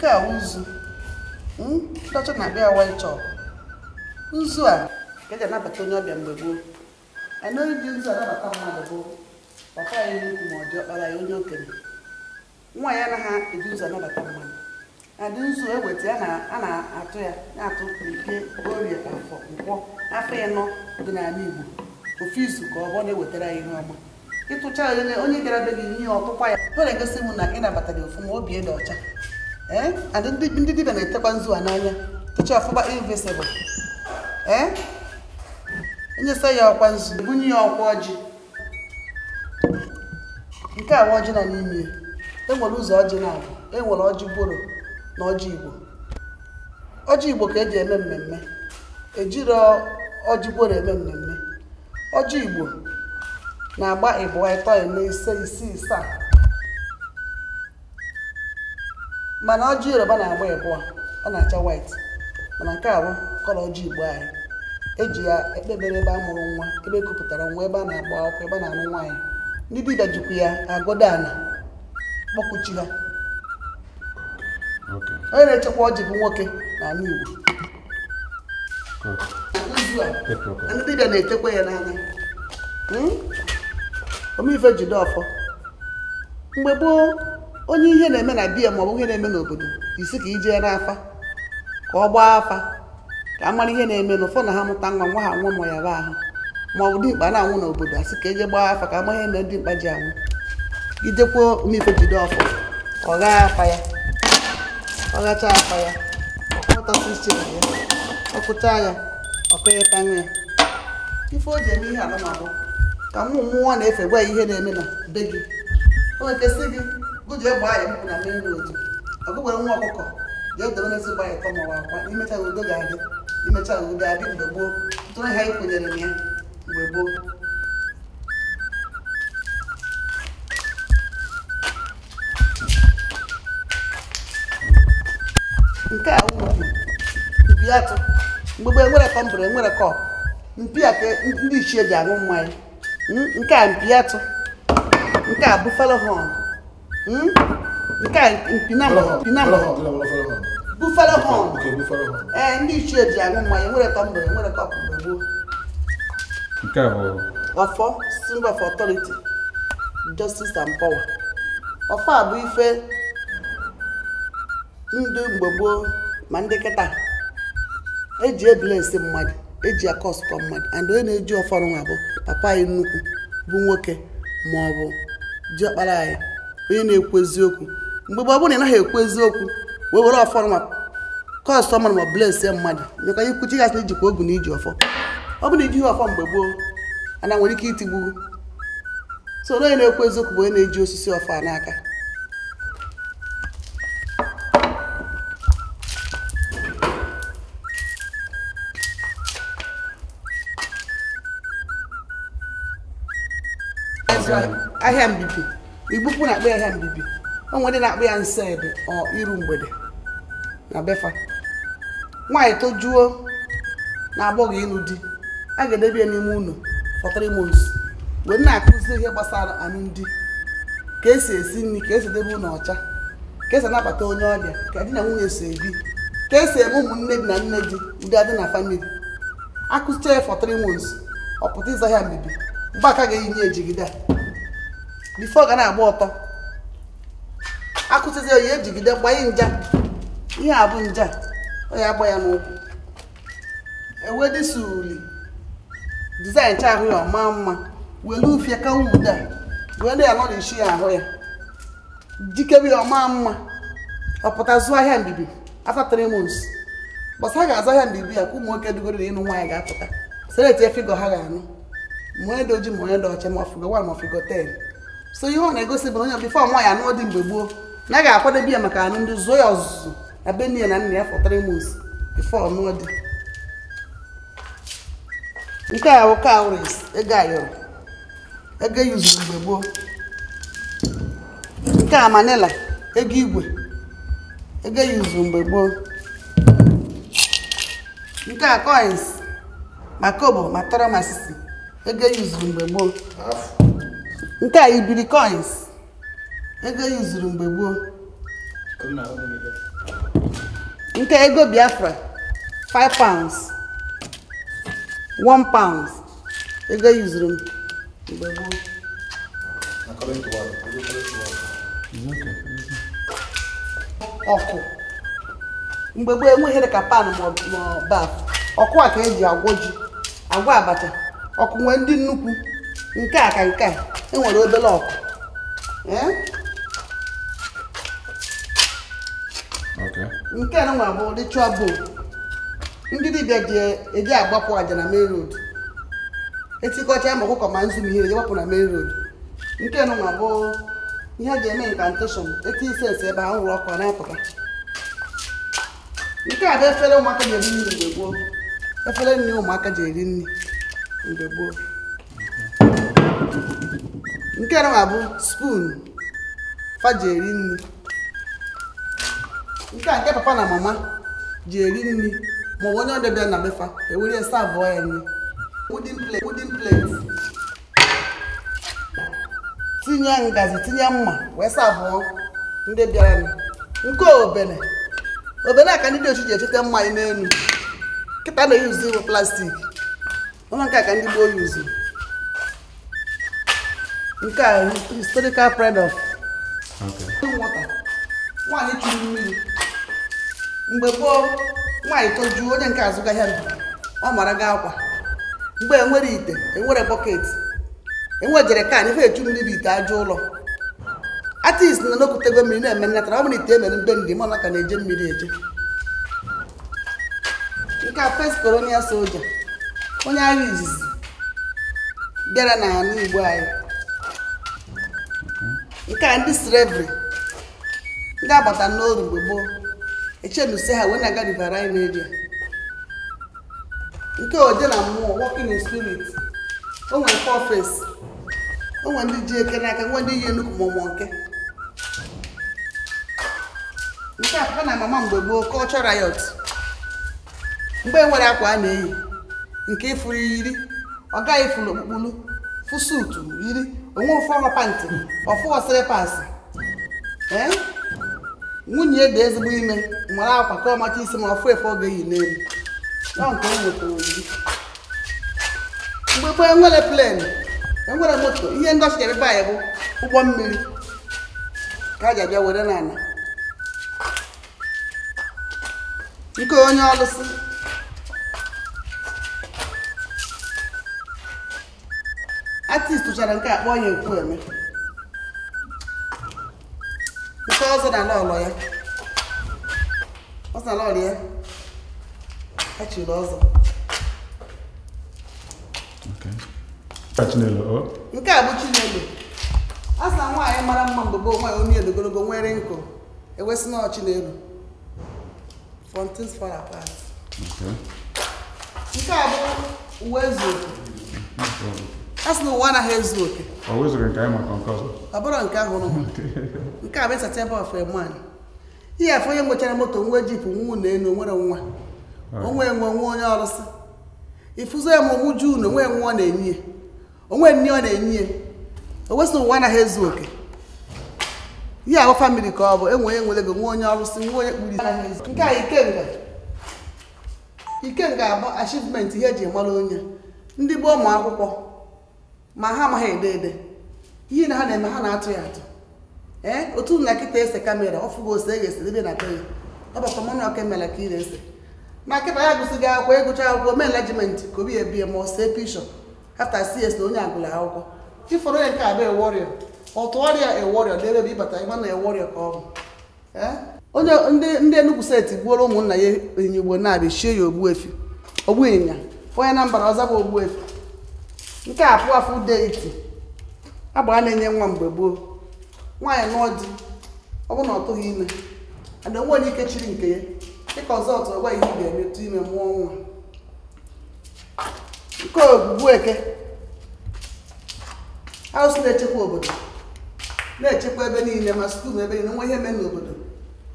Nke a ụzụ ndị hmm? ọcha na-akpa ya white chalk nzu a ka eji anabata onye ọbịa mgbe gboo anaghị ji nzu anabata mmadụ bụ papa ya nnukwu ma ọ dị ọkpara ya onye okenye nwa ya anaghị eji nzu anabata mmadụ adị nzu eweta a na-atụ ya na-atụ ike orie afọ nkwọ afọ ịnọ dị n'ala Igbo ofu izu ka ọ bụ na-ewetara ya ihe ọma ịtụcha onye gara be gị ihe ọtụkwa ya ọ na-egosi m na ị nabatara ofu ma obi dị ọcha ee ndị dibịa na-etekwa nzu a n'anya techa ọfụma invisibụl ee enyesa ya ọkwa nzu bunye ya ọkwa ọjị nke a nwa ọjị na n'ime enwere ụzọ ọjị na-abụ enwere ọjị bụrụ na ọjị igbo ọjị igbo ka eji eme mmemme ejiro ọjị boro eme mmemme ọjị igbo na-agba ịbụa ịtọ eme ise isii isaa mana ọjị yoruba na-agba ịbụọ ọ na-acha white mana nke a bụ kọlọ ọjị igbo anyị eji ya ekpebere ebe a mụrụ nwa ebe e nwa ebe a na-agba akwụkwọ ebe a na-alụ nwaanyị ndị dibịa jikwa ya agọdo ala kpọkuchi ha onye na-echekwa ọjị bụ nwoke n'ala igbo ndị na ya hmm? omeife jide ọfọ mgbe gboo onye ihe na-eme na biya maọbụ ihe na-eme n'obodo isi ka ijee n'afa ka ọ gbaa afa ka a mara ihe na-eme ụfọdụ na ha mụta nwa nwa ha nwa ma ya ba ahụ maọbụ dimkpa na-anwụ n'obodo asị ka eje gbaa afa ka a maghị eme dimkpa ji anwụ idekwuo mmeife jide ọfọ ọ ghaa afa ya ọ ghacha afa ya ọkpọtasị ya ọkụcha ya ọkụnyeta ya ife o ji eme ihe alụmabụ ka nwa mmụọ na-efe gwa ya ihe na-eme na be gị o gị jee gbaa ya mkpụ na main road ọgụgwere nwa ọkụkọ jee dobe tọ mawa akwa imecha udo ga-adị mgbe gboo ha ya mgbe gboo nke a mpi atụ enwere kọmbụrụ enwere mpi a ndị ichie ji aṅụ mmanya hmm? nke a mpi atụ nke a bufalo Hmm? nke a bufere họn ee ndị ichie ji aṅụ mmanya nwere tọ mgbe nwere kọpụ mgbe gboo nke bụ ọfọ symbol of authority justice and power ọfọ a bụ ife ndụ mgbe gboo ma ndị kịta eji ebilensi mmadụ eji akọsụkọ mmadụ and onye na-eji ọfọ nwa bụ papa anyị nnukwu bụ nwoke ma ọ bụ diọkpara anyị onye na-ekwu eziokwu mgbe mgbe ọ bụrụ na ị naghị ekwu eziokwu wee were ọfọ ma kọstọma ma blesie mmadụ nyekwa ihe kwuchi gasị ijikwa ogu na iji ọfọ ọ bụrụ na ijighị ọfọ mgbe gboo ana nwere ike itigbu so onye na-ekwu eziokwu bụ onye na-eji osisi ọfọ a n'aka ahịa mbibi igbukwu na-akpọ ya ahịa mbibi onwe ndị na-akpọ ya nsọ ebe ọ iru mgbede na befa nwaanyị tojuo na agbọghọ ịnụ di a ga-edebe ya n'ime ụlọ for three months wee na-akụzi ihe gbasara alụmdi ka esi esi nri ka esi edebe ụlọ ọcha ka esi anabata onye ọbịa ka di na nwunye so ebi ka esi eme ụmụnne di na nne di ndị adị na famili akụzicha ya for three months ọ pụta ịza ahịa mbibi mgbe aka ga-eyinye ejigide a bifo ga na-agba ọtọ akụzizi oyi ejigide gbanye nja ihe a bụ nja onye agba ya n'ụkwụ ewedisuli dizaịn cha ahụ ya ọma mma welu ufie kawa ude a wee na ya nọ nọrishi ya ahụ ya jikebe ya ọma mma ọpụta zụọ ahịa mbibi after three months gbasa ga-azụ ahịa mbibi ya ka ụmụ nwoke dugoro na ịnụ nwaanyị ga-apụta seleti efigo ha ga-anụ ma onye dị ojii ma onye dị ọcha ma ọfigo one ma ọfigo ten so ihe ọ na-egosi bụ onye bifo nwa ya anụ dị mgbe gboo na ga akwadebe ya maka anụ ndị zụọ ya ọzụzụ na be na nna ya for three months before ọnụọ dị nke a bụ cowries ego ayọrọ ego e yuzuru mgbe gboo nke a manila ego igwe ego e yuzuru mgbe gboo nke a coins ma kobo ma tọrọ ma sisi ego e yuzuru mgbe gboo nke a ibiri coins ego yuzuru mgbe gboo nke ego biafra 5 pounds 1 pound ego yuzuru mgbe gboo ọkụ mgbe gboo enweghịrị ka pan maọbụ baf ọkụ a ka eji agwọ ji agwa abacha ọkụ nwee ndị nnukwu nke a ka nke a nwere obere ọkụ nke a nwa bụ ritual bowl ndị dibịa ji eji agbapụ aja na main road etikọcha ma ọkụkọ ma nzu ihe gbapụ na main road nke a nwa bụ ihe ji eme incantation eti isensi ebe ha nwụrụ ọkụ na-apụta nke a bụ efere ụmụaka ji eri nri mgbe gboo efere nri ụmụaka ji eri nri mgbe gboo nke a bụ spoon fa ji eri nri nke a nke papa na mama ji eri nri maọbụ onye ọbịa bịa na befa ewere ya savụọ ya nri wooden plate wooden plate tinye ngazi tinye mma wee savụọ ndị bịara nke obele obele ka ndị dị ochi ji echete mma anyị n'elu nkịta na-eyuzi eyi plastik ụlọ nke a ka ndị gboo yuzi nke a historical pride of chụrụ mmiri mgbe gboo nwaanyị tojuo onye nke azụ ahịa ndụ ọ mara gị akwa mgbe enwere ite enwere bọket enwejere kan ife echu mmiri ite aja ụlọ artist na n'okwutego mmiri na-eme nnatara ọ bụrụ ite emere mgbe ndị mana ka na-eje mmiri eje nke a first colonial soldier onye agha izizi bịara n'ala Igbo anyị nke a ndị srevri ndị agbata n'oru mgbe gboo echenuse ha wee na-aga riverine area nke oje na mmụọ working in spirit onwere fọfes nwere ndị ji eke n'aka nwe ndị yi enukwu mụmụ nke nke a papa na mama mgbe gboo culture riot mgbe e nwere akwa a na-eyi nke ifuru yiri ọ gaghị ifuru okpukpulu fụsutu yiri onwe ofụọrọ pantị ọfụ sịrịpasị ee eh? nwunye dị ezigbo ime mara akwa ka ọmacha isi ma ọfụ efe oge yi n'elu ya nke nwetara mgbe gbee nwere plen enwere moto ihe ndị ọchịcha ebe anyị bụ ụgbọ mmiri ka a ji abịa were n'ala nke onye ọlụsị artist tụchara nke a kpọọ ya ekwueme nke ọzọ na n'ọlọ ya ọzọ n'ọlọ ya achịrị ọzọ nke a bụ chinelo a nwaanyị mara mma mgbe gboo nwaanyị onye edogologo nwere nkụ ewesị na ọchinelo from things apart nke a bụ uwe zuru a sị na ụwa anaghị ezu oke ọ bụrụ nke ahụ nke a bụ ịsachebe of a man ihe afọ onye nwechara moto nwa jipụ nwa unu enu onwere nwa onwe enwe nwa onye ọrụsị ifuzo ya ma onwe nwa ọ na-enye onwe nne ọ na-enye ya o ụwa anaghị ezu oke ihe ahụ famili ka ọ bụ enwe onye nwere gị nwa onye ọrụsị nwa onye nke a ikenga ikenga abụ achivement ihe eji mara onye ndị bụ ụmụ akwụkwọ ma ha amaghị ede ede ihe na ha na-eme ha na-atụ ya atụ ee otu na nkịta ese kamera ọ ose e ga ese debe na be ya ọ mmanụ ọka emela ka ị na-ese na nkịta ya gụsịghị akwụkwọ ịgụcha e akwụkwọ mee enlajimenti ka obi ebie ma ọ see pishọ afta cs na onye agụla akwụkwọ ịfọrọ ya nke abụ eworịọ ọtụgharịa eworịọ debe ebe ịbata ịma na eworịọ ka ọ bụ e? onye ndị Enugu steeti gbuoro ụmụnna ya ịnyịnya Igbo na-abịa shie ya ogbu Ogbuịnyịnya onye na mbara ọza bụ efi nke a afụ afọ ude iti agbara na-enye nwa mgbe gboo nwaanyị nụọ di ọ bụrụ na ọ tụghị ime ada nwe onye ike chiri nke ya dịka ọzọ ọtụ ọgwa ihe ga emetụ ime mụọ nwa nke ogbugbu eke arụsị na-echekwa obodo na-echekwa ebe niile ma skuul ebe niile nwa ihe mee n'obodo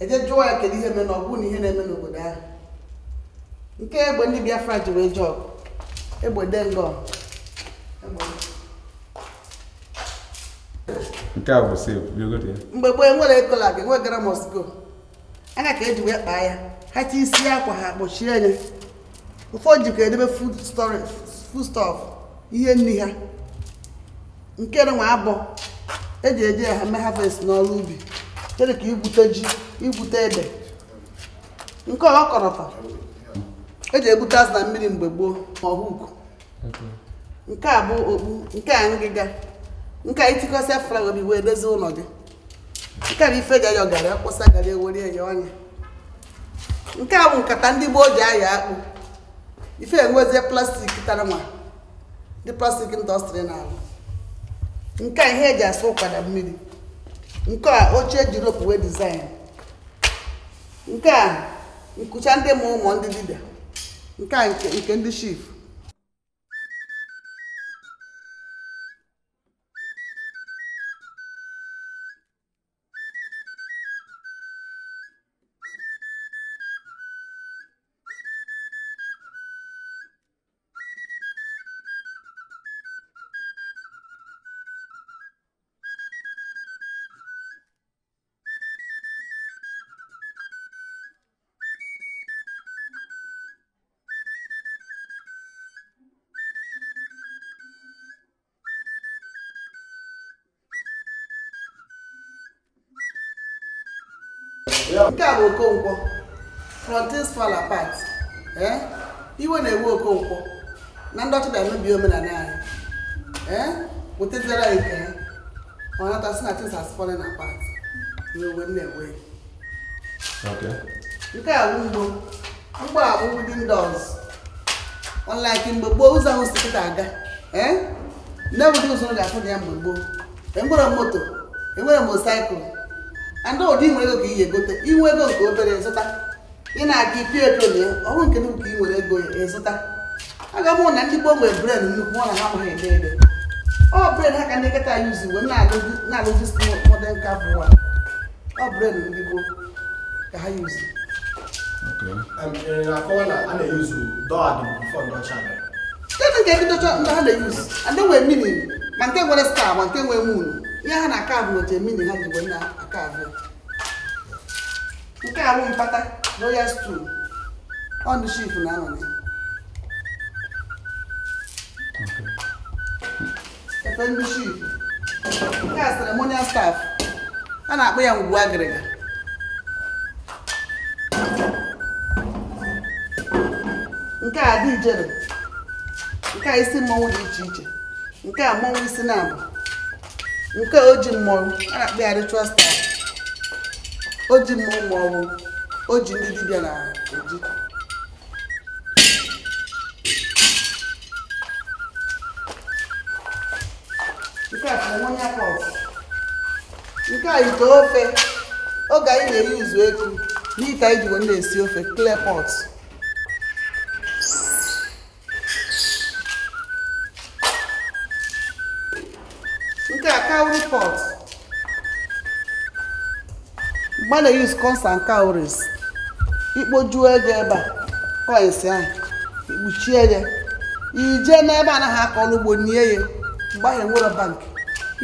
eje jụọ ya kedu ihe mee na ọ bụrụ na ihe na-eme n'obodo ahụ nke egbe ndị Biafra ji wee jọọ egbe dengọ nke a bụ mgbe gboo enwere ego lab enwe gramos go aka ka eji wee kpaa ya ha ti isi akwa ha kpochie ya ụfọdụ jikwa edebe foodstuff ihe nri ha nke nwa abọ eji eje ya ha mee n'ọrụ ubi chere ka igwute ji igwute ede nke ọkọrọta eji egbute azụ na mmiri mgbe gboo ma ọhụụ nke a bụ okpu nke a ngịga nke a itikọsịa flawa bi wee dozie ụlọ gị nke a bụ ife ga gara akwụsa gara ewere ya ọnya nke a bụ nkata ndị gboo ji aya akpụ ife enwezie plastik tara nwa ndị plastik ndọstrị na-arụ nke a ihe eji asa ụkwada mmiri nke a oche eji ropu wee dizaịn nke a nkucha ndị ma ụmụ ndị dibịa nke a nke ndị shif nke a bụ okonkwo frontis fall apart ee eh? iwe na-ewe okonkwo na ndị ọchịbịa emebi omenala anyị ee eh? wetazara nke ha ọ nata si na things has fallen apart na-ewe. nke a bụ mgbo mgbo a bụ within doors unlike mgbe gboo ụzọ ahụ si kịta aga ee eh? nne ụdị ụzọ ga-afụ dị ya mgbe gboo enwere moto enwere mosaikụl andị ụdị nwere ego ka ị ga-egote inwe ego nke obere zụta ị na-aga ipi etolie ọrụ nke nnukwu nke ị nwere ego ịzụta aga m na ndị gbo nwere bred nnukwu ọ na ha amaghị ede ede ọ bred ha ka ndị nkịta ya uzi uwe na-alụzi modern cap ụwa ọ bred ndị gboo ka ha yuzi kedụ nke ndị docha ndị ha na-eyuzi andị e nwere mmiri ma nke nwere star ma nke nwere munu ihe ha na-aka bụ ojemini ha ji na aka abụọ nke a mpata royal stew ọnụ shif na anọ efe ndị shif nke a ceremonial staff a na-akpọ ya ngwu agịrịga nke a dị ijere nke a isi mmọnwụ dị iche iche nke a mmọnwụ isi na-abụ nke o ji mmọnwụ a na-akpọ ya ritual style o ji mmọnwụ ma ọ bụ o ji ndị dibịa na oji nke a ceremonia pot nke ite ofe oge anyị na-eyi uzu eku n'ite anyị ji na-esi ofe clay pot nke a cowry pot mgbe na use corns and cowries ikpojuo ego ebe a coins ahụ ikpuchie ya ije n'ebe anaghị akọrọ ugbo nie ya mgbe ahụ enwere bank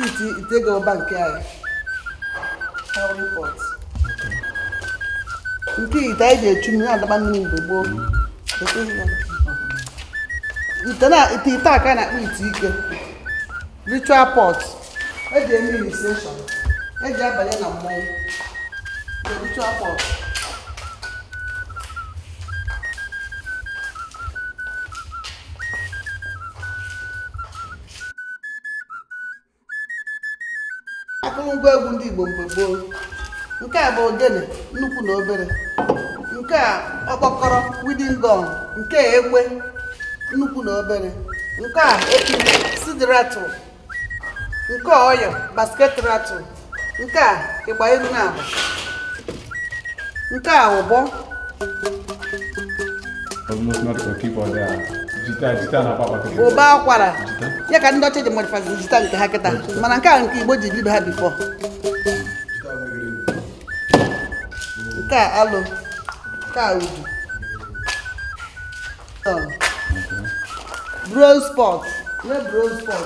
iti ite ego bank anyị nke ite anyị ji echu mmiri adaba mmiri mgbe gboo ite ite a ka na-akpọ ite ike ritual pot eji eme initiation e ji abanye na mmọnwụ the ritual pot akụrụngwa egwu ndị Igbo mgbe nke a bụ ogene nnukwu na obere nke a ọkpọkọrọ widin gọn nke a egbe nnukwu na obere nke a ekiri sidiratụ nke a ọyọ basket ratụ nke a ịgba elu na agba nke a ụbọ ụba akwara ya ka ndị ọcha de modifazi jita nke ha kịta mana nke a nke igbo ji bido ha bifọ nke a alụ nke a udu bronze pot nwee bronze pot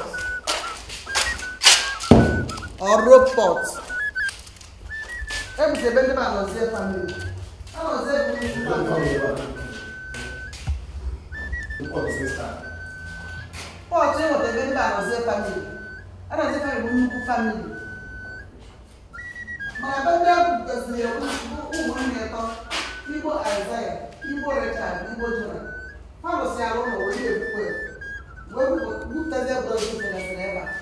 or rope pot. Ebi sebe ndị ma nọzie A nọzie bụ ndị ma nọzie. Pọt ịnweta ebe ndị ma nọzie famili. A nọzie famili bụ nnukwu famili. Mana ebe ndị ahụ gosiri ya ụmụnne ịtọ Igbo Aịzaya, Igbo Richard, Igbo Jona. Ha rụsịara ụlọ wee ebukwe. Wee bupụtazie bụrụ ndị fere fere ebe a.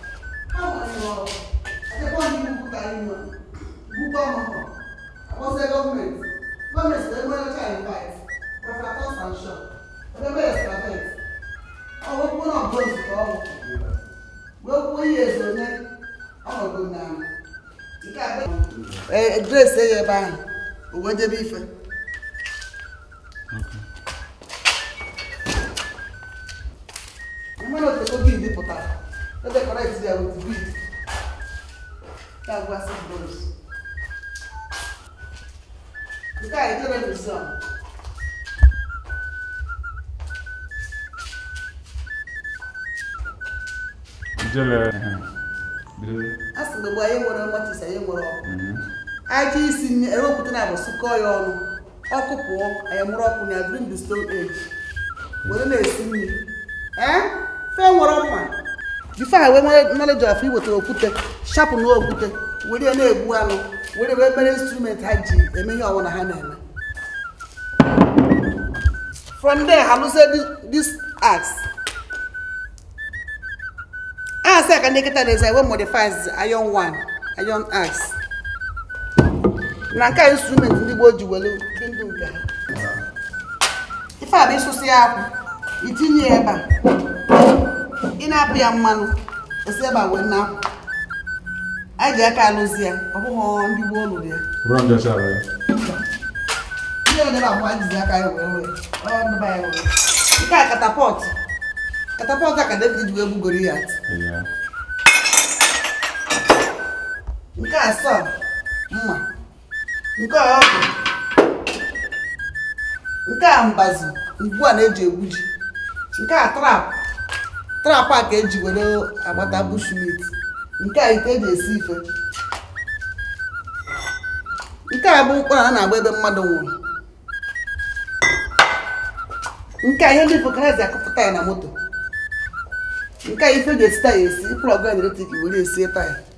Ha nwere ọrụ sekwa ndị Igbo karịrị mma bukwa ọmụmụ akpọsịa gọọmenti gọọmenti wee nwere ọcha invite prefector sanction edebe estabet ọwụkwụ na ọbụla nzukọ ọnwụ wee kwuo ihe ezonye ọnọdụ na nke abịa grace eye ebe ahụ o wee debe ife aja mhm. isi ewepụta na abụ sụkọọ ya ọnụ ọkụ pụọ anyamụrụ ọkụ na during the stone age were na-esi nri ee eh? fe nwere ọnwa jife ha wee knowledge of iwetara okwute shapụ na okwute were na-egbu anụ were wee mere instrument ha ji eme ihe ọwụna ha na-eme from there ha lụzie this ndị na nke instrument ndị gboo ji were ndụ nke ha ife a bụ ịsụsị ya akwụ itinye ya ebe a ị na-apụ ya mmanụ esi ebe a wee na akwụ a ji aka alụzi ya ọ bụghị ndị Igbo lụrụ ya ihe odebe abụọ jizi aka ya wee wee ọdụba ya wee nke a katapọtụ katapọtụ a ka David wee gbugoro ya nke a sọ mma nke a ọ bụ nke a mbazi ugbu a na-eji egwu ji nke a trap trap a ka eji were agbata bushmit nke a ite eji esi ife nke a bụ ụkpara a na-agba ebe mmadụ nwụrụ nke a ihe ndị ka akụpụta ya na moto nke a ife ga-esi taya esi plọg eletrik were esie taya